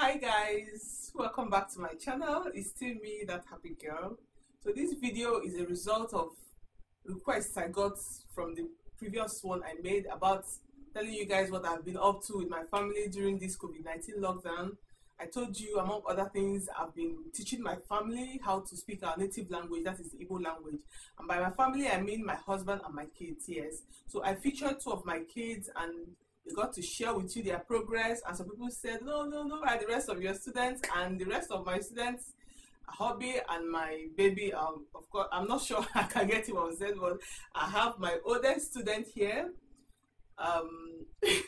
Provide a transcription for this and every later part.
hi guys welcome back to my channel it's still me that happy girl so this video is a result of requests i got from the previous one i made about telling you guys what i've been up to with my family during this covid-19 lockdown i told you among other things i've been teaching my family how to speak our native language that is the Igbo language and by my family i mean my husband and my kids yes so i featured two of my kids and they got to share with you their progress. And some people said, no, no, no, by the rest of your students and the rest of my students, hobby and my baby. Um, of course, I'm not sure I can get him on said, but I have my oldest student here. Um, he's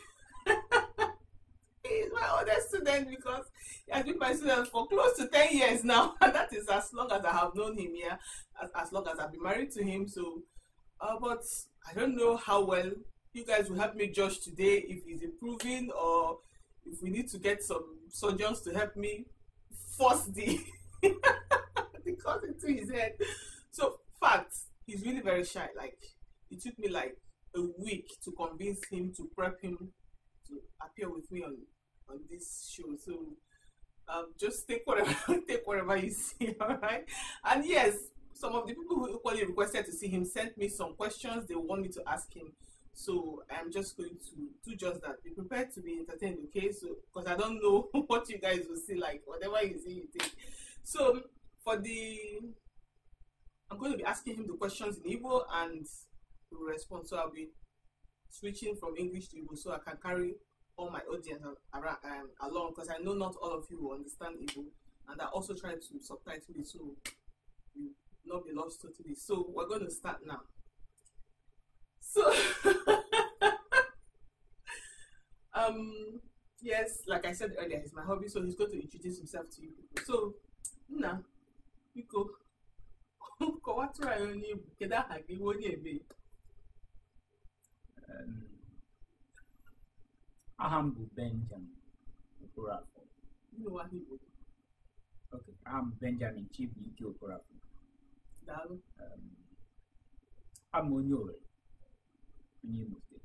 my oldest student because I've been my student for close to 10 years now. And that is as long as I have known him, here, as, as long as I've been married to him. So, uh, but I don't know how well you guys will help me judge today if he's improving or if we need to get some surgeons to help me force the the cut into his head. So facts, he's really very shy. Like it took me like a week to convince him to prep him to appear with me on on this show. So um, just take whatever take whatever you see, all right? And yes, some of the people who equally requested to see him sent me some questions they want me to ask him. So I'm just going to do just that. Be prepared to be entertained, okay? So because I don't know what you guys will see, like whatever you see, you think. So for the, I'm going to be asking him the questions in Igbo and the response, respond. So I'll be switching from English to Igbo so I can carry all my audience around, um, along because I know not all of you will understand Igbo, and I also try to subtitle it so you not be lost totally. So we're going to start now. So, um, yes, like I said earlier, he's my hobby, so he's going to introduce himself to you people. So, Nna, biko, kọwatụrụ anyị onye Igbo, kedu aha gị nwa onye ebe? Aha m bụ Benjamin Okorafor. Nnewa Igbo. Okay, aha m bụ Benjamin Chibuike Okorafor. Daalụ. Um, Abụ m onye Owerri. nie mów dit.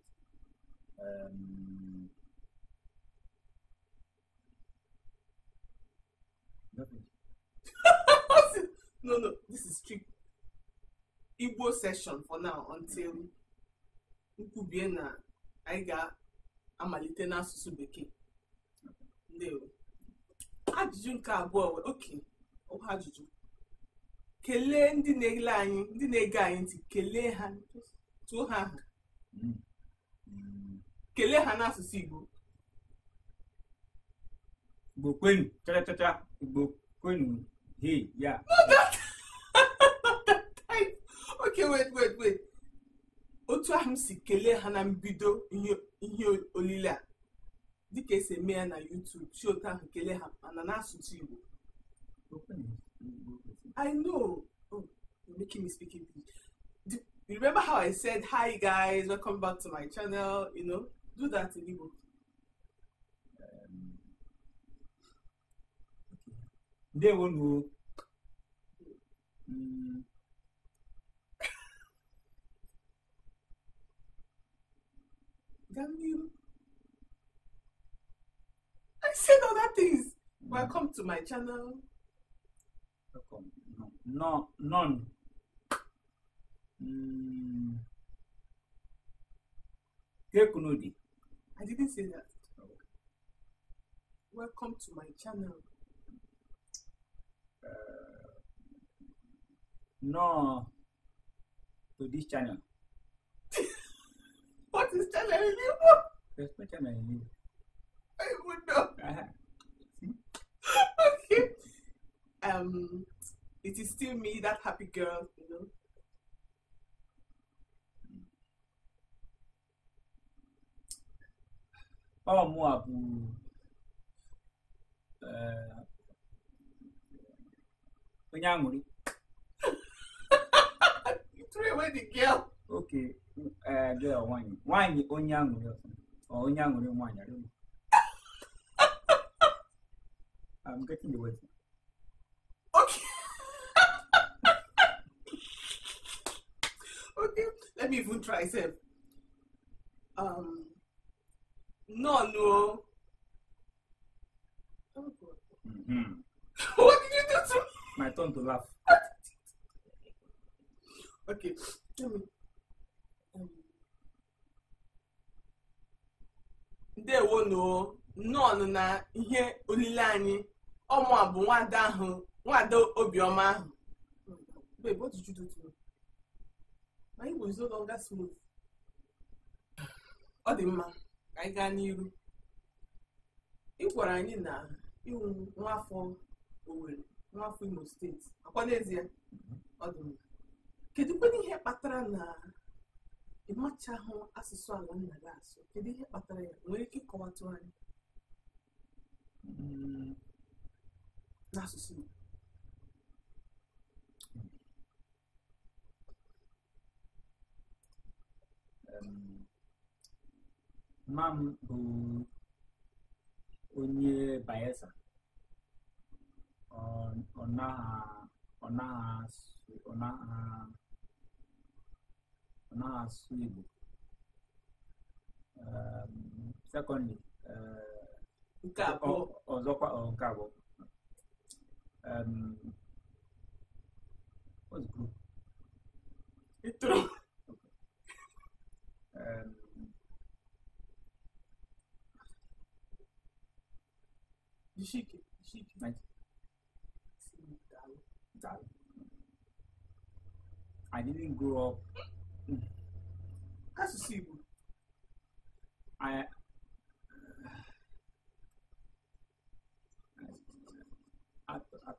Um, nothing. no, no, this is strict Igbo session for now until nkwubie na anyị ga-amalite n'asụsụ bekee. Ndewo. Ajụjụ nke abụọ wee oke ọkwa ajụjụ. Kelee ndị na-ele anyị, ndị na-ege anyị ntị, kelee ha, tụọ ha aha. kelee ha n'asụsụ igbo igbo kwenu chachachacha igbo kwenu hey ya ok wait wait wait otu ahụ m si kelee ha na mbido ihe olile a dịka esi eme ya na YouTube si otu ahụ kelee ha mana n'asụsụ igbo i know oh, making me speak English You remember how I said, hi guys, welcome back to my channel, you know? Do that in Igbo. they won't go. I said all that things. Mm. Welcome to my channel. Welcome. No, no, none. Mm. Kunodi. I didn't say that. Oh. Welcome to my channel. Uh, no, to this channel. what is channel in Igbo? There's no channel in I would know. Uh-huh. okay. Um, it is still me, that happy girl, you know. bawa mu abu uh, onye aṅụrị oke eh, girl nwanyị nwanyị onye I'm getting the word. Okay. okay. Let me even try. Say, um, Nọọnụ o. Oh, mm-hmm. What did you do to me? My turn to laugh. okay, tell me. Um, noo na ihe olile anyị ọmụ a bụ nwada ahụ obiọma ahụ ka anyị gaa n'iru ị gwara anyị na iwu nwaafọ Owerri Imo steeti akwa n'ezie ọ dị ihe kpatara na ịmachahụ asụsụ ala nna gị asụ kedu ihe kpatara ya nwere ike ịkọwatụ anyị mm. n'asụsụ Igbo Mma m bụ um, onye Bayelsa ọ naghị asụ Igbo um, sekọndị ọzọkwa um, nke abụọ Dişik. Dişik. Bence. I didn't grow up. That's a I.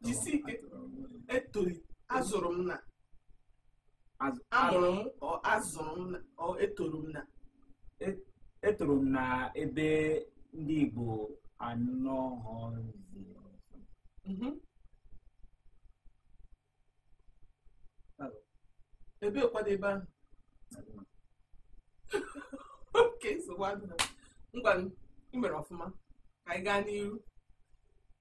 Jisi ike etoli azụrụ m na amụrụ m ọ azụrụ na ọ etolu na etolu na ebe ndị Igbo anọghọzi mm-hmm. ebe kwadebe ahụ oke nsogbu adịla ngwa ị mere ọfụma ka anyị gaa n'ihu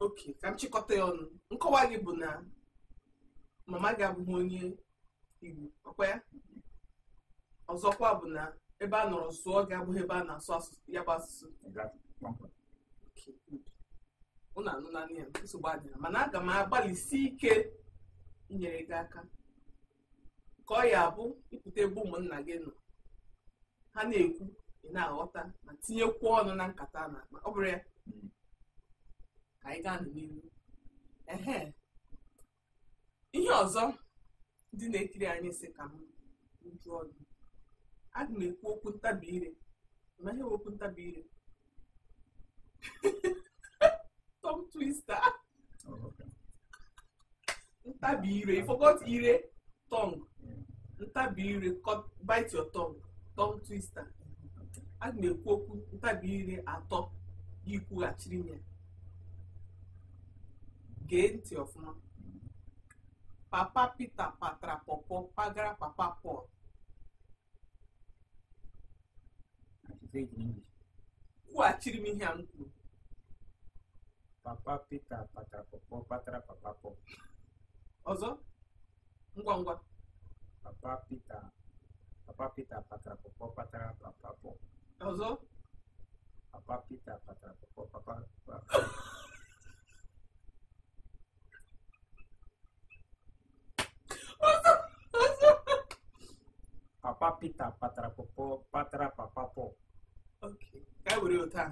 oke ka m chịkọta ya ọnụ nkọwa gị bụ na mama gị abụghị onye igbo ọkwa ya ọzọkwa bụ na ebe a nọrọ sụọ gị abụghị ebe a na-asụ ya bụ asụsụ na anụnanụ ya nsogbu adịghị mana aga m agbalịsi ike inyere gị aka ka ọ ya abụ ịpụta ebe ụmụnna gị nọ ha na-ekwu ị na-aghọta ma tinyekwu ọnụ na nkata na akpa ọ bụrụ ya ka anyị gaa n'ihu ehe ihe ọzọ ndị na-ekiri anyị si ka m jụọ gị aga m ekwu okwu ntabi ire ma ihe okwu ntabi ire Tongue twister. Oh, okay. Ntabi ire. You forgot ire. Tongue. Ntabi ire. Cut, bite your tongue. Tongue twister. A na-ekwu okwu ntabi ire atọ gị kwughachiri m ya. Gee ntị ọfụma. Papa Peter patara pọpọ pagara papa Paul. Kwughachiri m ihe a m papa Pita patra popo patra papa popo, ozo ngwa ngwa papa Pita papa Pita patra popo patra papa popo, ozo papa Pita patra patra papa papa. Papa Pita Patra Popo Patra Papapo. Okay. oke, kayak utang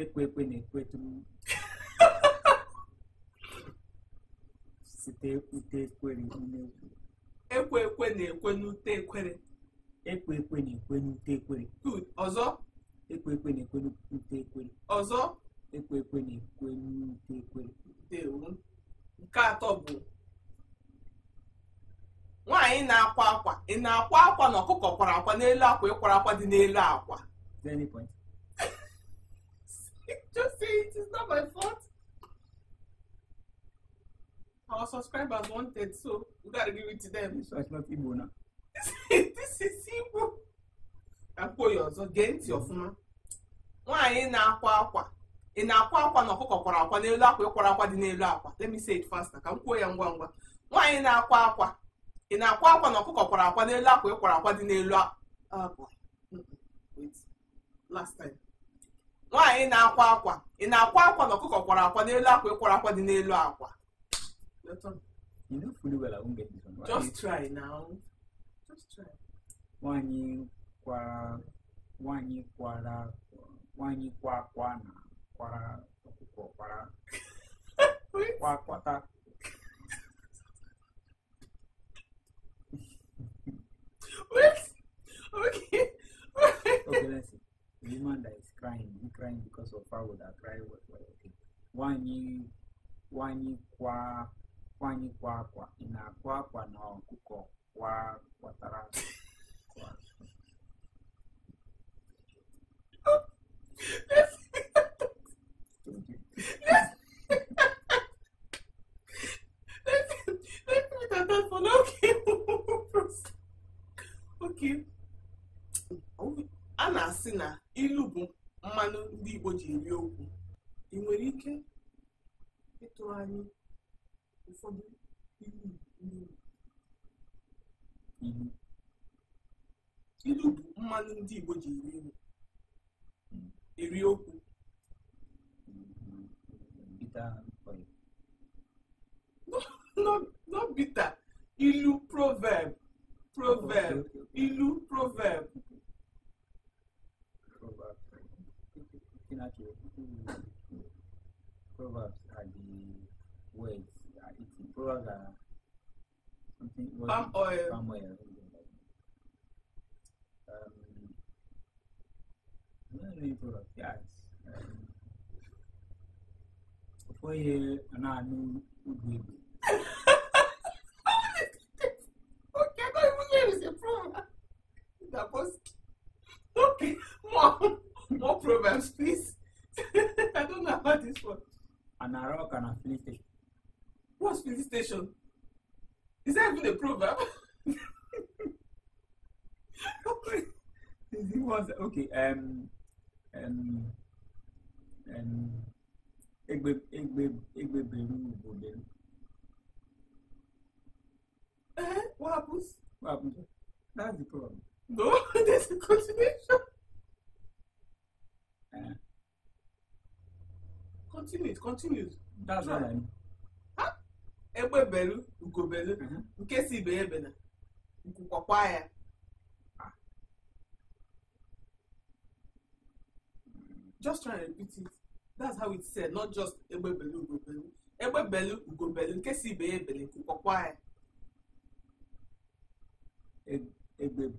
ekwe ekwe na-ekwetu site ute ekwere ekwe ekwe na-ekwe n'ute ekwere ekwe ekwe na-ekwe n'ute ekwere ọzọ ekwe ekwe na-ekwe n'ute ekwere ọzọ ekwe ekwe na-ekwe n'ute ekwere nke atọ bụ nwaanyị na-akwa akwa ị na-akwa akwa na ọkụkọ kwara akwa n'elu akwa ịkwara akwa dị n'elu akwa say it. It's not my fault. Our subscribers wanted, so we gotta give it to them. So it's not Igbo now. this is Igbo. Akwa ya ọzọ gee ntị ọfụma. Nwaanyị na-akwa akwa. Ị na-akwa akwa na ọkụkọ kwara akwa n'elu akwa ịkwara akwa dị n'elu akwa. Let me say it faster ka m kwuo ya ngwa ngwa. Nwaanyị na-akwa akwa. Ị na-akwa akwa na ọkụkọ kwara akwa n'elu akwa ịkwara akwa dị n'elu akwa. Ah, Last time. nwaanyị na-akwa akwa ị na-akwa akwa na ọkụkọ kwara akwa n'elu akwa ịkwara akwa dị n'elu akwa just try nwaanyị kwara nwaanyị kwa akwa na kwara ọkụkọ kwara kwa akwata Okay. okay. woman that is crying, you crying because of how that cry was okay. Wanyi wanyi kwa wanyi kwa kwa ina kwa kwa na kuko kwa kwa tara. Okay. okay. a na-asị na ilu bụ mmanụ ndị Igbo ji eri okwu ị nwere ike ịtụrụ anyị ụfọdụ ilu bụ mmanụ ndị Igbo ji eri okwu no bita ilu proverb proverb ilu proverb looking at your proverbs are the words are it's Proverbs are something. Palm oil. Palm oil. Um, no, no, proverbs. Yes. Um, for you, and I know who us, please. I don't know about this one. An Arak and a Philistine. What's Philistine? Is that even a proverb? it was okay. Um, um, um, Egbe, Egbe, Egbe, Beru, Eh, what happens? What happens? That's the problem. No, there's a continuation. continue it continues. that's what i mean. egbe belu ugobelu mm-hmm. nke si ibe ya ebena ya. just try and repeat it that's how it said not just egbe belu ugobelu egbe belu ugobelu nke si ibe ya ebena nkwukwakwa ya. egbe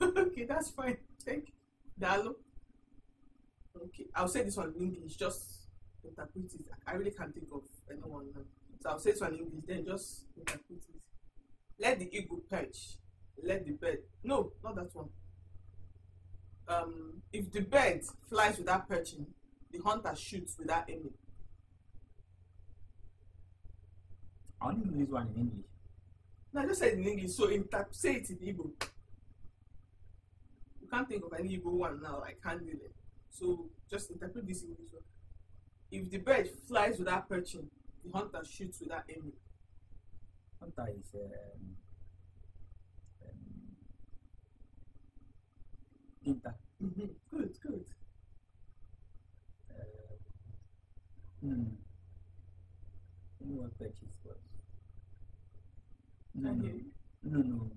okay that's fine thank you okay i'll say this one in english just interpret it i really can't think of anyone now so i'll say this one in english then just interpret it let the eagle perch let the bird no not that one um if the bird flies without perching the hunter shoots without aiming. I only know this one in English. No, I just said in English, so in tap, say it in Igbo. You can't think of any Igbo one now, I can't do it. So just interpret this English one. If the bird flies without perching, the hunter shoots without aiming. Hunter is um, um, hunter. Mm-hmm. Good, good. No, Apache Spark. No, no, no, no.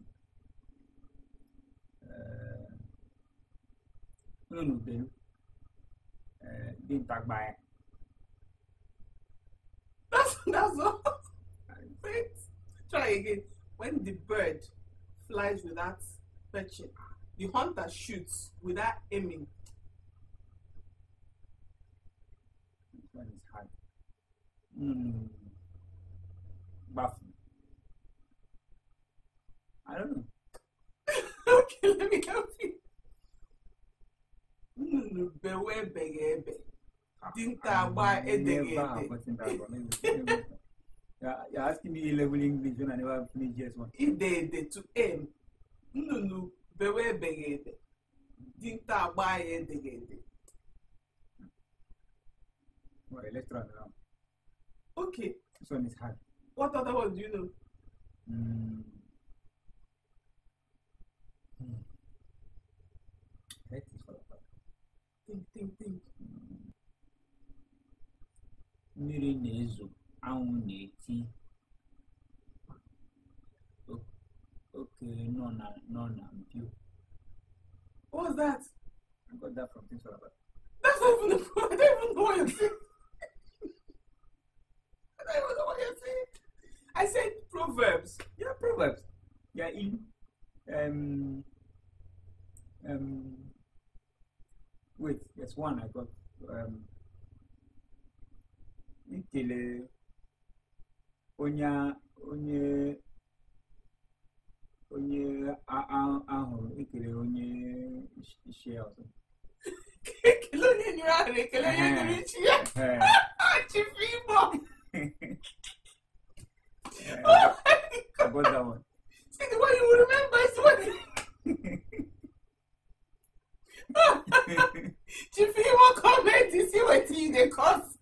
Uh, no, no, then. Uh, then tag by. That's, that's all. Wait, try again. When the bird flies without fetching, the hunter shoots without aiming. when it's high. Mm. Baffling. I don't know. okay, let me help you. Bẹ̀wẹ̀ bẹ̀yẹ̀ ẹ̀bẹ̀. Díntà àgbà ẹ̀dẹ̀gẹ̀dẹ̀. You're asking me A-level English when I never finished this one Ìdẹ̀ẹ̀dẹ̀ to aim. Nnụnụ bẹ̀wẹ̀ bẹ̀yẹ̀ ẹ̀dẹ̀. Díntà àgbà ẹ̀dẹ̀gẹ̀dẹ̀. Right, let's Okay. This one is hard. What other one do you know? Mm. Hmm. I hate this for the Think, think, think. Hmm. Mmiri na-ezo, anwụ na-eti. Okenye nọ na nọ na mpio. What's that? I got that from Things Fall That's not even the I don't even know what you're saying. I was what you said. I said Proverbs. Yeah, Proverbs. Yeah, in um um wait, there's one I got um ikele onye onye onye ahụrụ Ikile, onye ichie ọzọ ekele onye nyere ahụrụ ekele onye yeah, I got that one. See the one you remember is what. Chief, you feel want comment you see what you the cause.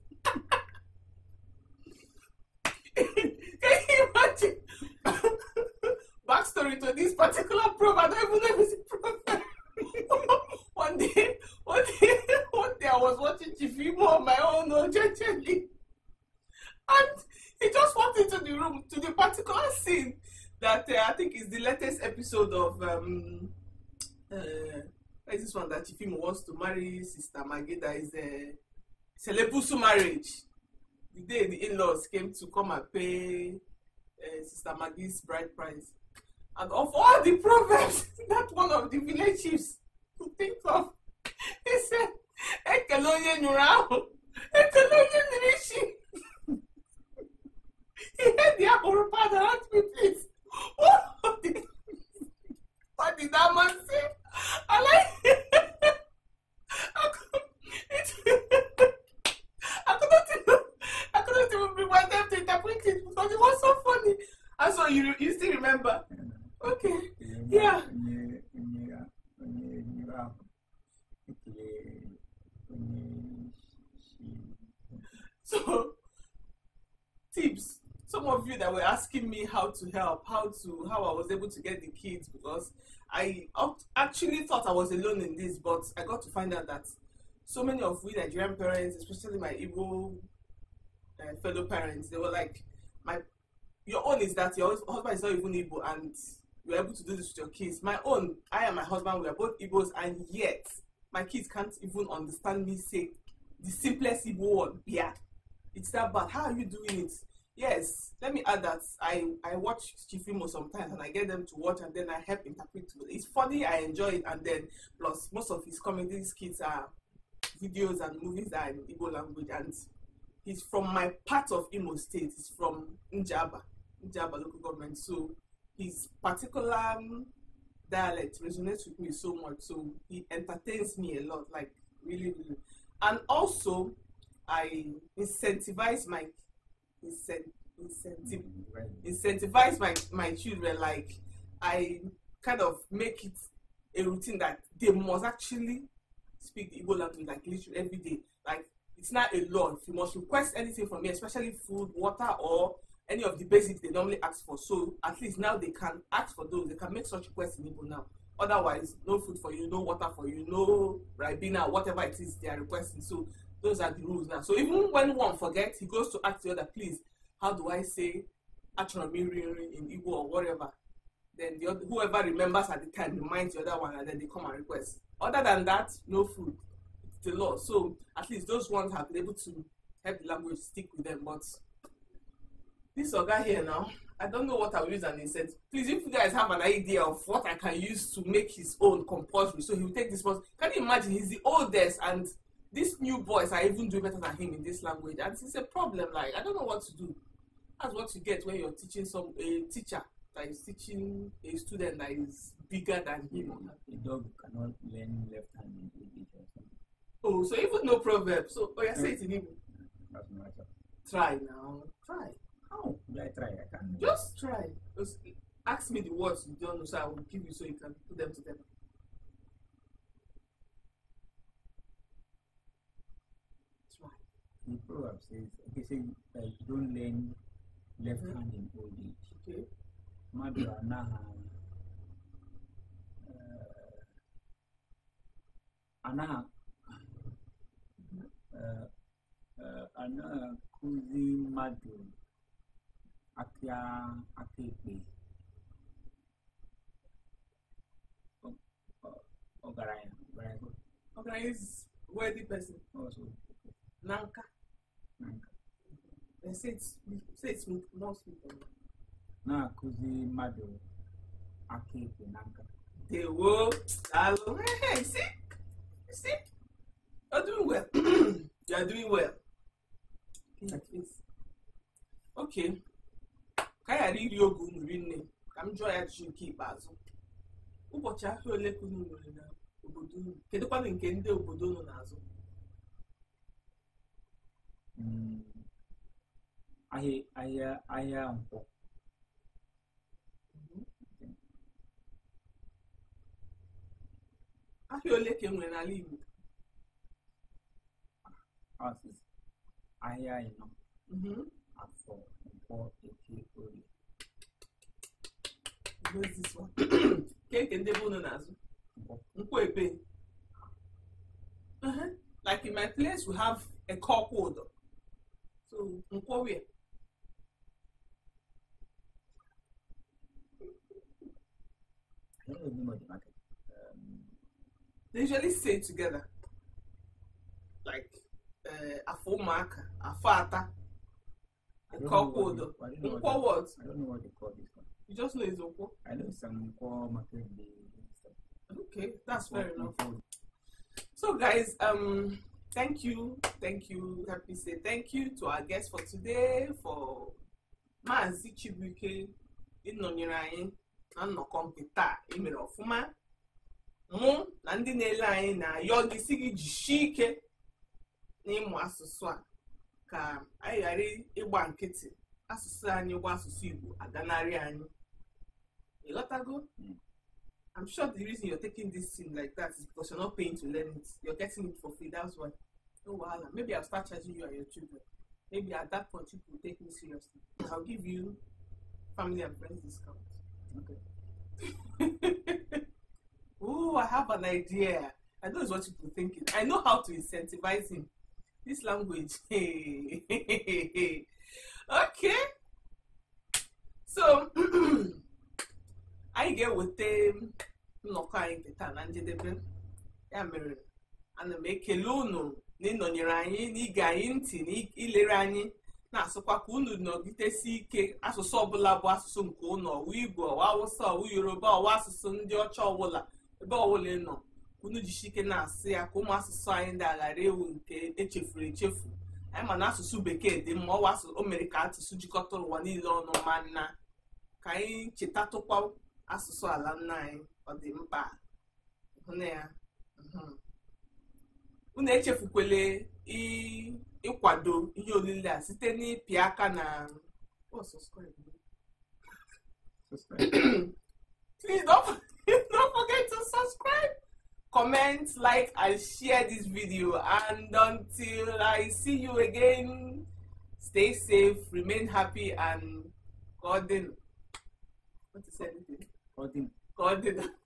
Can you imagine? Backstory to this particular probe, I don't even know episode of um, uh, like this one that Chifimo wants to marry Sister Mageda is uh, a Selepusu marriage. The day the in-laws came to come and pay uh, Sister Maggie's bride price. And of all the proverbs that one of the village chiefs could think of, he said, Ekelonye Nurao, Ekelonye Nirishi. he had the apple how to help, how to how I was able to get the kids because I actually thought I was alone in this, but I got to find out that so many of we Nigerian parents, especially my Igbo uh, fellow parents, they were like, my your own is that your husband is not even Igbo and you're able to do this with your kids. My own, I and my husband, we are both Igbos, and yet my kids can't even understand me say the simplest Igbo word, yeah. It's that bad. How are you doing it? Yes, let me add that I, I watch Chifimo sometimes and I get them to watch and then I help interpret. It's funny, I enjoy it, and then plus most of his comedy skits are videos and movies that are in Igbo language, and he's from my part of Imo State. He's from Njaba, Njaba local government. So his particular um, dialect resonates with me so much. So he entertains me a lot, like really, really. And also, I incentivize my incent- incentive mm-hmm. incentivize my my children like i kind of make it a routine that they must actually speak the Igbo language like literally every day. Like it's not a law. If you must request anything from me, especially food, water, or any of the basics they normally ask for. So at least now they can ask for those. They can make such requests in Igbo now. Otherwise, no food for you, no water for you, no ribena, whatever it is they are requesting. So those are the rules now. So even when one forgets, he goes to ask the other, please, how do I say Achonamiriri in Igbo or whatever? Then the other, whoever remembers at the time reminds the other one and then they come and request. Other than that, no food. It's the law. So at least those ones have been able to help the language stick with them. But this guy here now, I don't know what I will use an said, Please, if you guys have an idea of what I can use to make his own compulsory, so he will take this one. Can you imagine? He's the oldest and these new boys are even doing better than him in this language and it's a problem like i don't know what to do that's what you get when you're teaching some a teacher that is teaching a student that is bigger than him a dog cannot learn left hand oh so even no proverb so oh yeah say it in Igbo try now try how do i try i can't just try just ask me the words you don't know so i will give you so you can put them together in Proverbs says, okay, say, so don't lend left hand in old age. Okay. Madura naha. Ana ana kuzi madu akia akipi. ogaraya ogaraya ogaraya is worthy person also nanka na-akụzi mmadụ aka ekpe na nka na alụ si si you're doing well you're doing well okay ka ịrị ogwu oge unu rinne ka m jụọ ya jụụ nke ikpeazụ ụbọchị afọ ole ka unu nwere na obodo unu kedụkwanụ nke ndị obodo unu na-azụ ahịa ahịa ahịa ahịa ole ka enwere n'ala Igbo ahịa ịnọ afọ nkwọ eke orie keke ndị bụ unu na-azụ ebe like in my place we have a so nkwọwe they usually say together like uh, afọ ụmụaka afọ ata nkwọkwa odo nkwọ what I don't know what they call this one you just know it's nkwọ I know some nkwọ maka okay that's fair enough so guys um thank you thank you help me say thank you to our guest for today for Maazị Chibuike ịnọnyere anyị na nnọkọ nke taa emere ọfụma mụ na ndị na-ele anyị na-ayọ gị si gị jisie ike n'ịmụ asụsụ a ka anyị ghara ịgba nkịtị asụsụ anyị gwa asụsụ Igbo aganarị anyị ịghọtago I'm sure the reason you're taking this thing like that is because you're not paying to learn it. You're getting it for free. That's why. Oh wow. Maybe I'll start charging you and your children. Maybe at that point you will take me seriously. I'll give you family and friends discount. Okay. Ooh, I have an idea. I know it's what people thinking. I know how to incentivize him. This language. okay. So anyị ga-eweta nnọkọ anyị taa na njedebe ya mere ana m ekele unu na ịnọnyere anyị n'ige anyị ntị na ilere anyị na-asụkwa ka unu nọgidesi ike asụsụ ọbụla bụ asụsụ nke unu ọwụ igbo ọwa awụsa ọwụ yoruba ọwa asụsụ ndị ọcha ọbụla ebe ọbụla nọ unu jisi ike na-asụ ya ka ụmụ asụsụ anyị dị aghara ewu nke echefuru echefu anyị ma na asụsụ bekee dị mma ọwa o mere ka asụsụ jikọta ụwa niile ọnụ ma nna ka anyị chetatụkwa asụsụ ala nna anyị ọ dị mkpa ya mhm. unu echefukwele ịkwado ihe olile a site n'ịpị aka na oh, please don't, don't forget to subscribe comment like and share this video and until i see you again stay safe remain happy and god what is it कौन दिन कौन दिन